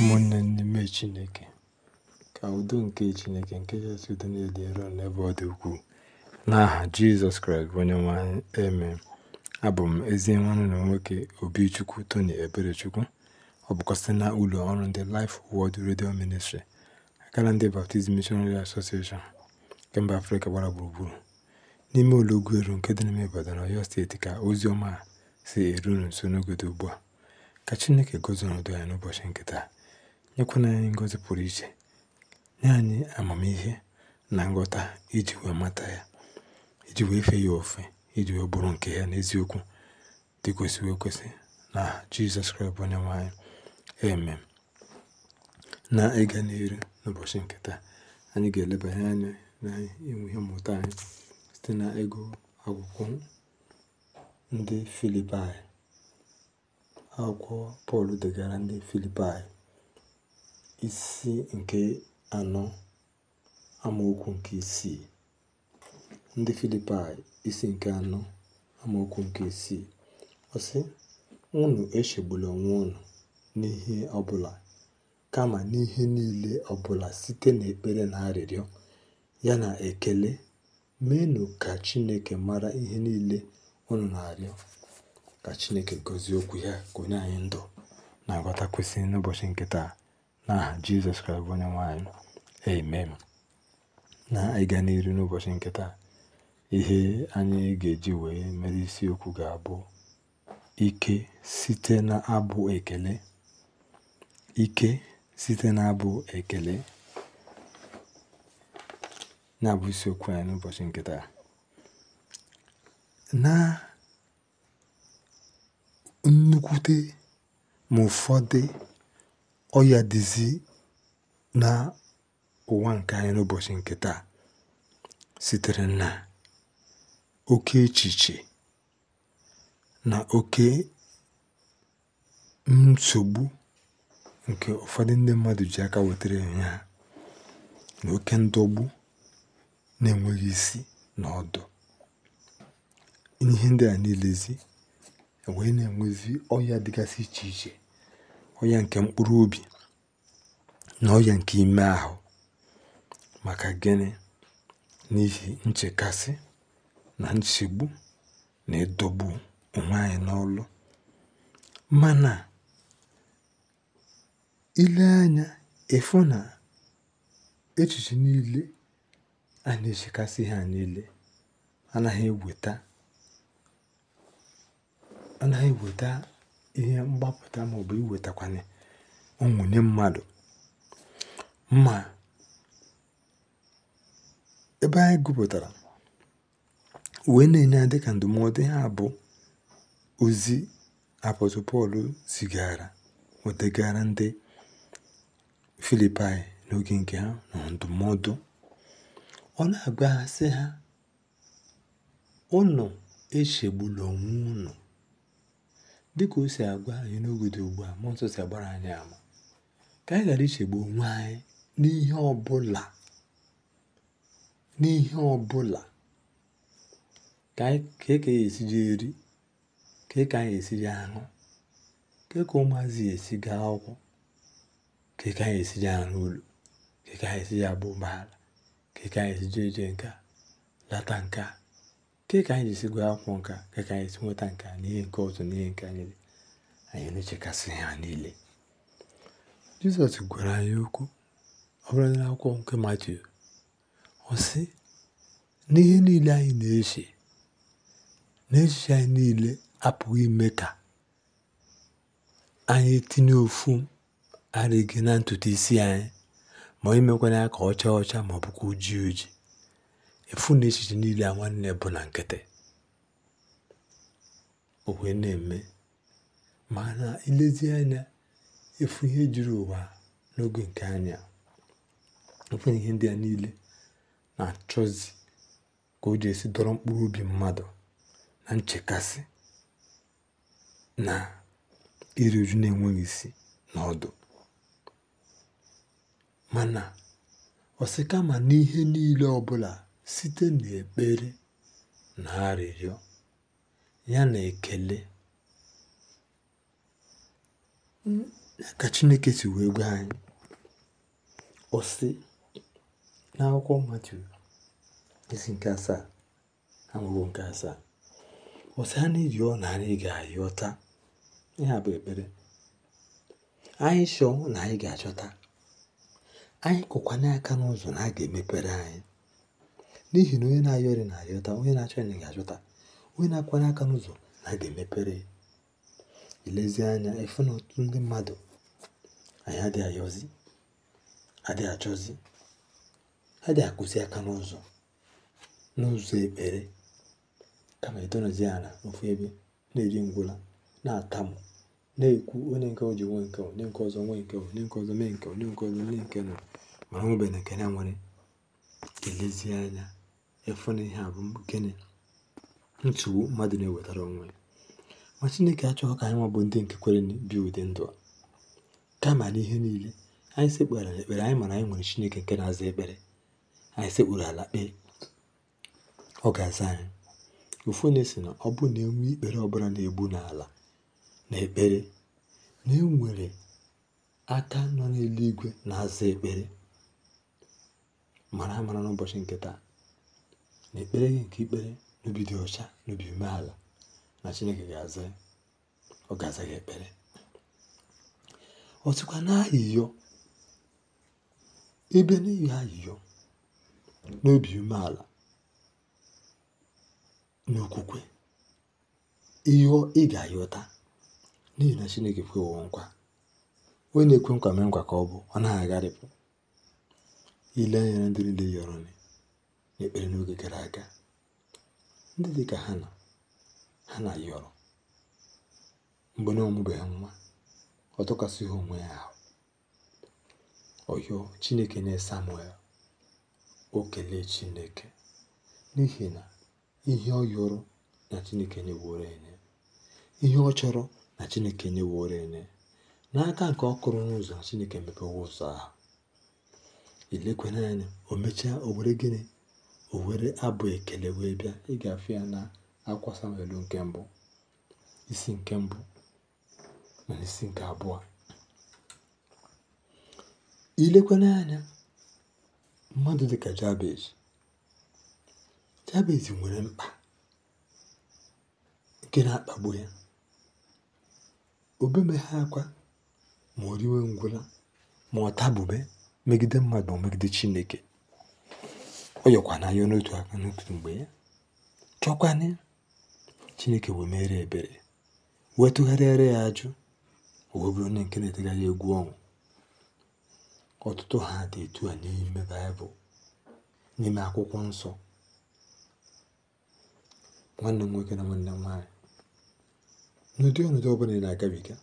Ụmụnne n'ime Chineke, ka udo nke Chineke nke kachasị udo niile dị nro n'ebe ọ dị ukwuu. N'aha Jizọs Kraịst bụ onye anyị, amen. Abụ m ezi nwanne na nwoke Obichukwu Tony Eberechukwu. Ọ bụkwa site na ụlọ ọrụ ndị Life Word Radio Ministry, akara ndị baptizim Missionary Association nke mba Afrịka gbara gburugburu, n'ime ụlọ Ugweru nke dị n'ime Ibadan, Ọyọ Steeti ka ozi ọma si eru nso n'oge dị ugbu a. Ka Chineke gọzie ọnọdụ anyị n'ụbọchị nkịta. nyekwana anyị ngọzi pụrụ iche nye anyị amamihe na nghọta iji wee mata ya iji wee fee ya ofe iji wee bụrụ nke ya n'eziokwu dị kwesịrị ekwesị na Jizọs Kraịst bụ onye nwe anyị na ịga n'iru n'ụbọchị nke anyị ga-elebanye anya na inwe ihe mmụta anyị site na ego akwụkwọ ndị Filipaị akwụkwọ Pọl degara ndị Filipaị isi nke anọ amaokwu nke isii ndị Filipaị isi nke anọ amaokwu nke isii ọsị ụnụ unu echegbula onwe unu n'ihe ọbụla kama n'ihe niile ọbụla site n'ekpere na arịrịọ ya na ekele meenụ ka Chineke mara ihe niile unu na-arịọ ka Chineke gọzie okwu ya ka onye anyị ndụ na nghọta n'ụbọchị nke taa ah Jizọs Kraịst bụ onye nwaanyị amen na ịga n'iru n'ụbọchị nkịta ihe anyị ga-eji wee mere isiokwu ga-abụ ike site n'abụ ekele ike site n'abụ ekele na-abụ isiokwu anyị n'ụbọchị nkịta na nnukwute ma ụfọdụ ọya dịzị na ụwa nke anyị n'ụbọchị nke taa sitere na oke echiche na oke nsogbu nke ụfọdụ ndị mmadụ ji aka wetara onwe ha na oke ndọgbu na-enweghị isi na ọdụ ihe ndị a niilezi e wee na-enwezi ọya dịgasị iche iche onye nke mkpụrụ obi na onye nke ime ahụ maka gịnị n'ihi nchekasị na nchegbu na ịdọgbu onwe anyị n'ọlụ mana ile anya ịfụ na echiche niile a na-echekasị ha niile anaghị eweta anaghị eweta ihe mgbapụta maọbụ iwetakwanye onwunye mmadụ Mma ebe anyị gụpụtara wee na-enye ya dịka ndụmọdụ ha bụ ozi apọstụ Pọl zigara o ndị Filipaị n'oge nke ha na ndụmọdụ ọ na agbaghasị ha sị ha unu echegbula onwe dịka o si agwa anyị n'oge ugbu a mmụọ nsọ si agbara anyị ama ka anyị ghara ichegbu onwe anyị n'ihe ọbụla n'ihe ọbụla ka eke ya esiji e eri ka eke anyị esiji aṅụ ka eke ụmụazị esi gaa akwụkwọ ka eke anyị esiji aṅụ ụlọ ka eke anyị esiji abụ ụgbọala ka eke anyị esiji je nke lata nke a Nke ka anyị ji gwa akwụkwọ nka a, ka anyị si nweta nke a na ihe nke ọzọ na ihe nke anyị niile, anyị na-echekasị ha niile. Jizọs gwara anyị okwu ọ bụla akwụkwọ nke Matiu. Ọ sị, n'ihe niile anyị na-eche, n'echiche anyị niile apụghị ime ka anyị tinye ofu arịghị na ntutu isi anyị ma imekwana ya ka ọ chaa ọcha ma ọ bụkwa ojii ojii. efu na echiche niile a nwanne bụ na nkịtị o wee na-eme mana ilezi anya efu ihe juru ụwa n'oge nke anya efu ihe ndị a niile na-achọzi ka o ji esi dọrọ mkpụrụ obi mmadụ na nchekasị na iri uju na-enweghị isi na ọdụ mana osikama n'ihe niile ọbụla site n'ekpere na arịrịọ ya na ekele ka Chineke si wee gwa anyị ọ n'akwụkwọ Matiu isi nke asaa amụbụ nke asaa ọ sị ha na-eyọ na anyị ga-ayọ taa ihe bụ ekpere anyị chọọ na anyị ga-achọta anyị kụkwanye aka n'ụzọ na a ga-emepere anyị N'ihi na onye na-ayọ na-ayọta, onye na-achọ nri ga-achọta, onye na-akwara aka n'ụzọ na ga-emepere ya. anya ịfụ na otu ndị mmadụ anyị adịghị ayọzi, adịghị achọzi, adịghị akwụsị aka n'ụzọ n'ụzọ ekpere kama ịdọnọzie ala n'ofu ebe na-eji ngwụla na-atamu na-ekwu onye nke o ji nwe nke onye nke ọzọ nwe nke onye nke ọzọ mee nke onye nke ọzọ mee nke nọ mana o nwebeghi nke na-enwere. Ka anya efu na ihe a bụ gịnị nsogbu mmadụ na-ewetara onwe ya ma chineke achọghị ka anyị nwa bụ ndị nke kwere bi ụdị ndụ a kama n'ihe niile anyị sekpere ekpere anyị mara anyị nwere chineke nke na-aza ekpere anyị sekpuru ala kpee ọ ga-aza anyị ụfọdụ na na ọ bụ na enwe ikpere ọbụla na-egbu n'ala na ekpere na enwere aka nọ n'eluigwe na-aza ekpere mara amara n'ụbọchị nke taa na ekpere gị nke ikpere n'obi dị ọcha n'obi umeala na chineke ga-aza ọ ga-aza gị ekpere ọtụkwa n'ayịyọ ebe n'ihi ayịyọ n'obi umeala n'okwukwe ịyọ ị ga-ayọta n'ihi na chineke kwewo nkwa onye na-ekwe nkwa mee nkwa ka ọ bụ ọ naghị agharịpụ ile anya na ndị niile yọrọ nị ekpere n'oge gara aga ndị dị ka ha na ha na yọrọ mgbe na ọmụbeghị nwa ọ tụkwasịghị onwe ya ahụ ọyọ chineke na samuel o kelee chineke n'ihi na ihe ọ yọrọ na chineke nyeworo enye ihe ọ chọrọ na chineke nyeworo enye n'aka nke ọ kụrụ n'ụzọ na chineke mepewe ụzọ ahụ ilekwana anya o mechaa o were gịnị o were abụ ekele wee bịa ị ga-afụ ya na akwa Samuel nke mbụ isi nke mbụ na isi nke abụọ ilekwana anya mmadụ dịka Jabez Jabez nwere mkpa nke na-akpagbu ya obemeghe akwa ma o riwe ngwụla ma ọ tabube megide mmadụ ma megide Chineke yọkwana ya n'otu aka n'otu mgbe ya chọkwana ya chineke wee mere ebere wee tụgharịara ya ajụ o bụrụ onye nke na-etegharị egwu ọnwụ ọtụtụ ha dị etu a n'ime baịbụl n'ime akwụkwọ nsọ nwanne m nwoke na nwanne m nwaanyị n'ụdị ọnọdụ ọbụla ị na-agabiga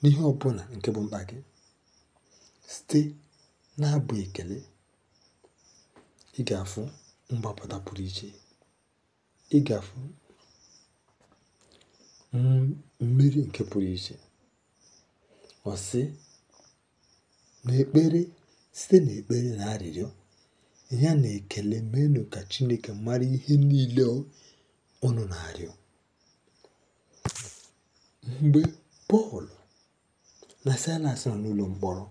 n'ihe ọbụla nke bụ mkpa gị site na-abụ ekele ị gafu mgbapụta pụrụ iche ị gafu mmiri nke pụrụ iche ọ na n'ekpere site n'ekpere na arịrịọ ya na ekele menu ka Chineke mara ihe niile ọnụ na-arịọ mgbe Pọl na Silas nọ n'ụlọ mkpọrọ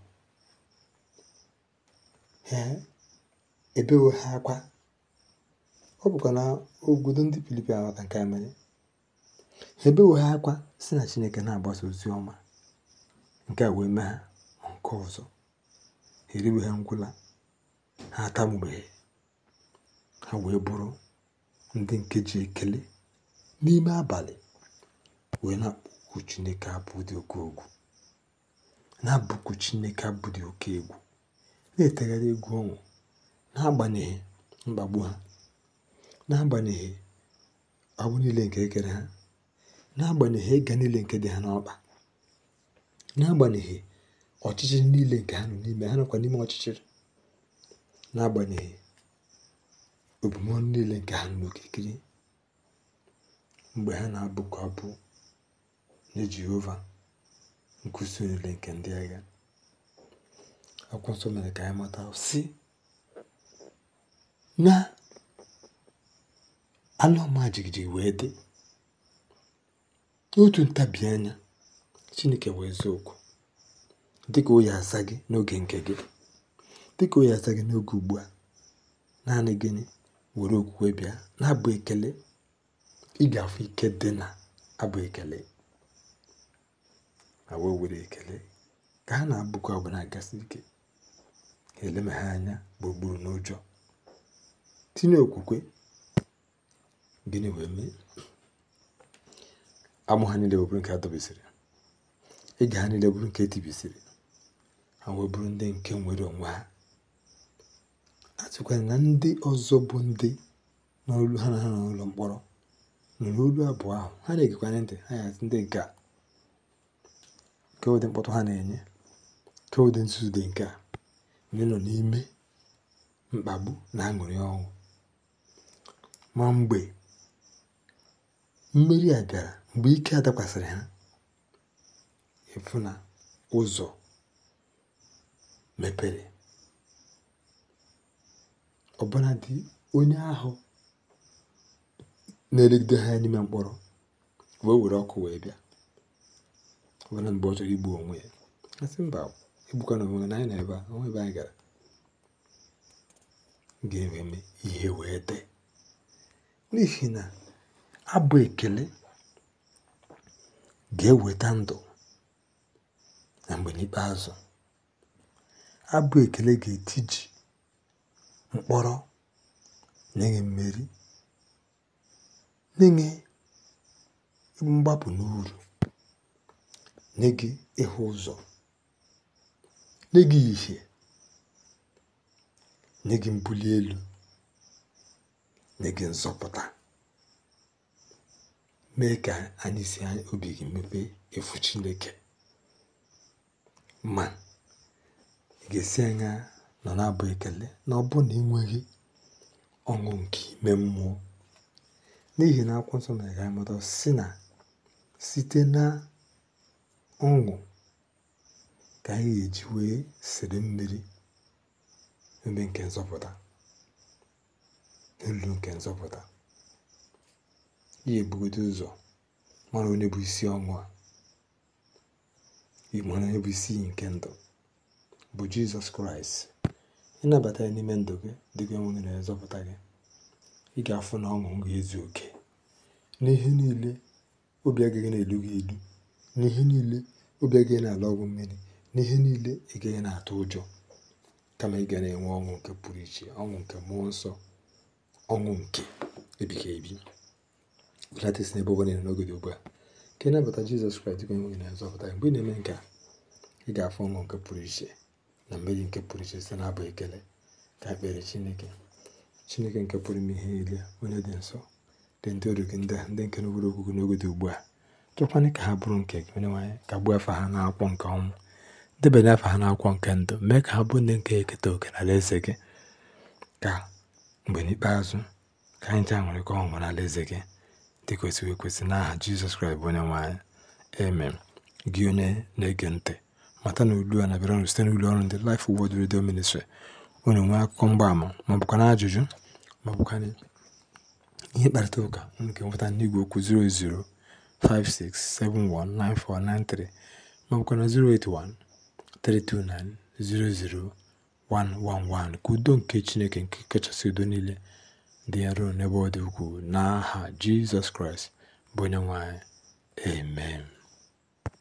èbewo ha akwa ọ bụkwa na obodo ndị Filipin aghọta nke a mere ha ebewo ha akwa si na Chineke na-agbasa ozi ọma nke a wee mee ha nke ọzọ ha eriwe ha ngwụla ha atamụbeghị ha wee bụrụ ndị nke ji ekele n'ime abalị wee na-akpọ Chineke abụ dị oke egwu na-abụku Chineke abụ dị oke egwu na-etegharị egwu ọnwụ n'agbanyeghị mkpagbu ha n'agbanyeghị agbụ niile nke e ha n'agbanyeghị ịga niile nke dị ha n'ọkpa n'agbanyeghị ọchịchịrị niile nke ha nọ n'ime ha nọkwa n'ime ọchịchịrị n'agbanyeghị obumọnụ niile nke ha n'okirikiri mgbe ha na-abụkọ abụ nye Jehova nkuzi niile nke ndị agha akwụkwọ nsọ mere ka anyị mata si. na ala ọma wee dị n'otu ntabi anya chineke wee zaa oku dịka o gị n'oge nke gị dịka o ya aza gị n'oge ugbu a naanị gịnị were okwukwe bịa na-abụ ekele ị ga-afụ ike dị na abụ ekele ma wee were ekele ka ha na-abụkwa ọbụla gasị ike eleme ha anya gburugburu n'ụjọ tinye okwukwe gịnị wee mee amụ ha niile bụrụ nke a dọbisiri ege ha niile bụrụ nke etibisiri ha wee bụrụ ndị nke nwere onwe ha atụkwara na ndị ọzọ bụ ndị n'olu ha na ha n'ụlọ mkpọrọ nụrụ olu abụọ ahụ ha na-egekwanye ntị ha ya ndị nke a nke ụdị mkpọtụ ha na-enye nke ụdị nzuzu dị nke a ndị nọ n'ime mkpagbu na aṅụrị ọnwụ. ma mgbe mmeri a gara mgbe ike a dakwasịrị ha efu na ụzọ mepere dị onye ahụ na-elegide ha n'ime mkpọrọ wee were ọkụ wee bịa ọbụna mgbe ọ chọrọ igbu onwe ya asị mba egbukwana onwe na anyị na ebe a ebe anyị gara ga ememe ihe wee dee N'ihi na abụ ekele ga-eweta ndụ na mgbe n'ikpeazụ. Abụ ekele ga-etiji mkpọrọ nye mmeri, nye mgbapụ n'uru, nye ịhụ ụzọ, nye gị ìhè, nye gị mbuli elu. nye nzọpụta mee ka anyị si obi gị mepee efu Chineke ma ị ga-esi anya nọ na-abụ ekele na ọ bụ na ị ọṅụ nke ime mmụọ n'ihi na akwụkwọ nsọ mere ka anyị si na site na ọṅụ ka anyị ga-eji wee sere mmiri ebe nke nzọpụta n'olulu nke nzọpụta ya ụzọ mara onye bụ isi ọnwụ a onye bụ isi nke ndụ bụ jizọs kraịst ịnabata ya n'ime ndụ gị dịka enwere na nzọpụta gị ị ga-afụ na ọṅụ ga-ezu oke n'ihe niile obi agaghị na-elu gị elu n'ihe niile obi agaghị na-ala ọgwụ mmiri n'ihe niile ị gaghị na-atụ ụjọ kama ị ga na-enwe ọṅụ nke pụrụ iche ọṅụ nke mmụọ nsọ ọṅụ nke ebighị ebi latest na ebe ụwa na-ere n'oge dị ugbu a ka ị nabata jizọs kraịst dịka onye na nzọpụta mgbe ị na-eme nke a ị ga-afụ ọṅụ nke pụrụ iche na mmeri nke pụrụ iche site n'abụ ekele ka ekpere chineke chineke nke pụrụ ime ihe niile onye dị nsọ dị ndị ọrụ gị ndị ndị nke n'obodo ogugo n'oge dị ugbu a tụkwanye ka ha bụrụ nke gị onye nwaanyị ka gbuo afọ ha na n'akwụkwọ nke ọnwụ debanye afọ ha na n'akwụkwọ nke ndụ mee ka ha bụ ndị nke eketa oke na alaeze gị ka mgbe n'ikpeazụ ka anyị ji aṅụrịkọ ọṅụ nwere eze gị dị kwesịrị ekwesị n'aha jizọs kraịst bụ onye nwaanyị anyị eme gị onye na-ege ntị mata na olu a na-abịara site n'ụlọ ọrụ ndị Life wod redio Ministry onye nwee akụkọ mgbaama ma ajụjụ ma ihe mkparịta ụka nke nweta enweta n'igwe okwu 0056719493 ma ọ 081 329 111 Ka udo nke Chineke nke kachasị udo niile dị nro n'ebe ọ dị ukwuu n'aha Jizọs Kraịst bụ onye nwanyị Amen.